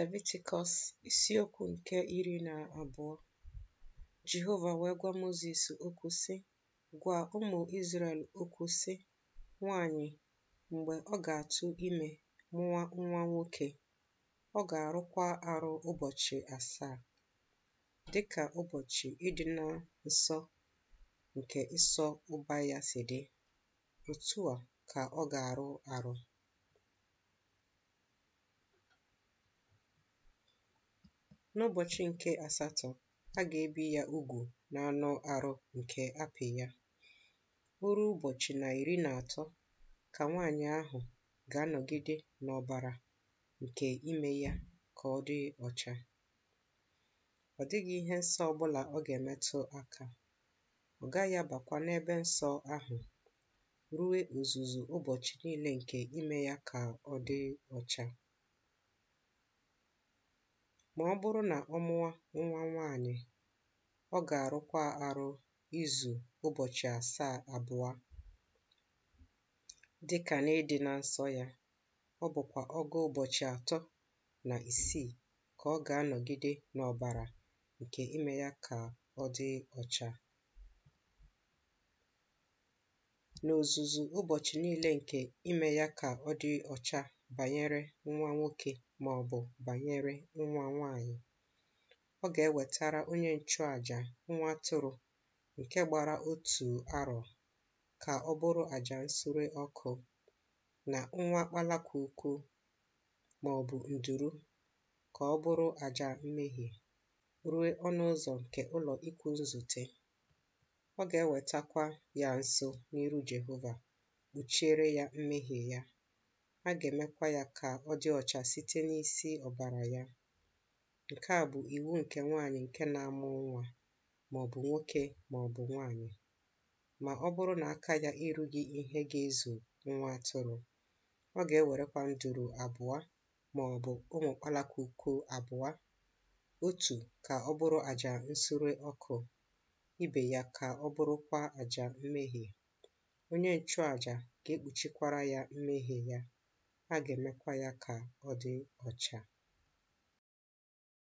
leviticus isiokwu nke iri na abụọ Jehova wee gwa Mozis okwu sị, “Gwa ụmụ Izrel okwu sị, ‘Nwanyị mgbe ọ ga-atụ ime mụwa nwa nwoke, ọ ga-arụkwa arụ ụbọchị asaa, dịka ụbọchị ịdị nsọ nke ịsọ ụba ya si dị, otu a ka ọ ga-arụ arụ. N'ụbọchị nke asatọ, a ga-ebi ya ugwu n'anụ arụ nke apị ya. O ụbọchị na iri na atọ ka nwaanyị ahụ ga-anọgide n'ọbara nke ime ya ka ọ dị ọcha. Ọ dịghị ihe nsọ bụla ọ ga-emetụ aka. Ọ gaghị abakwa n'ebe nsọ ahụ ruo ozuzu ụbọchị niile nke ime ya ka ọ dị ọcha. Ma ọ bụrụ na ọ mụwa nwa nwaanyị ọ ga-arụkwa arụ izu ụbọchị asaa abụọ dịkà n'ịdị na nsọ ya ọ bụkwa ọgụ ụbọchị atọ na isii ka ọ ga-anọgide n'ọbara nke ime ya ka ọ dị ọcha. N'ozuzu ụbọchị niile nke ime ya ka ọ dị ọcha. Banyere nwa nwoke ma ọ bụ banyere nwa nwaanyị ọ ga-ewetara onye nchụàjà nwa atụrụ nke gbara otu arọ ka ọ bụrụ àjà nsure ọkụ na nwa ọ bụ nduru ka ọ bụrụ àjà mmehie ruo ọnụ ụzọ nke ụlọ ikwu nzute ọ ga-ewetakwa ya nso n'iru Jehova kpuchiere ya mmehie ya a ga-emekwa ya ka ọ dị ọcha site n'isi ọbara ya. Nke a bụ iwu nke nwaanyị nke na-amụ nwa maọbụ nwoke maọbụ nwaanyị ma ọ bụrụ na aka ya erughị ihe ga-ezu nwa atụrụ. Ọ ga-ewerekwa nduru abụọ maọbụ ụmụ kpalakuku abụọ, otu ka ọ bụrụ àjà nsure ọkụ, ibe ya ka ọ bụrụkwa àjà mmehie. Onye nchụàjà ga-ekpuchikwara ya mmehie ya. a ga-emekwa ya ka ọ dị ọcha